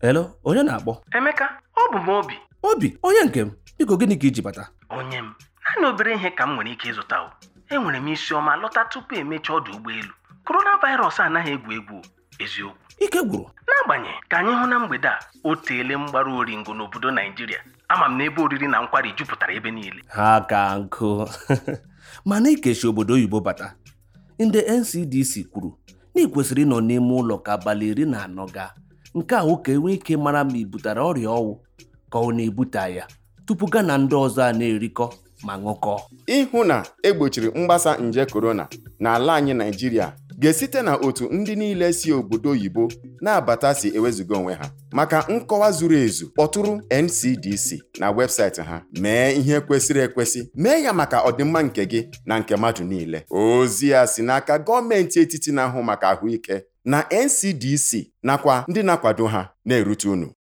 Hello, onye na-akpọ? Emeka, ọ bụ m Obi. Obi, onye nke m, biko gịnị ka iji bata? Onye m, naanị obere ihe ka m nwere ike ịzụta o. Enwere m isi ọma lọta tupu emechaa ọdụ ụgbọelu. koronavirus anaghị egwu egwu eziokwu. Ike gwụrụ. N'agbanyeghị ka anyị hụ na mgbede a o teele ori oringo n'obodo Naijiria ama m na ebe oriri na nkwari jupụtara ebe niile. Ha ka nkụ mana ikechi obodo oyibo bata ndị NCDC kwuru na ị kwesịrị ịnọ n'ime ụlọ ka abalị iri na anọ gaa nke a nwoke enwee ike mara ma ibutara butere ọrịa ọnwụ ka ọ na-ebute ya tupu gana ndị ọzọ a na-erikọ ma ṅụkọọ ịhụ na egbochiri mgbasa nje korona n'ala anyị Naijiria ga-esite na otu ndị niile si obodo oyibo na-abata si ewezuga onwe ha maka nkọwa zuru ezu kpọtụrụ NCDC na webụsaịtị ha mee ihe kwesịrị ekwesị mee ya maka ọdịmma nke gị na nke mmadụ niile ozi ya si n'aka gọọmenti etiti na-ahụ maka ahụike na NCDC nakwa ndị na-akwado ha na-erute unu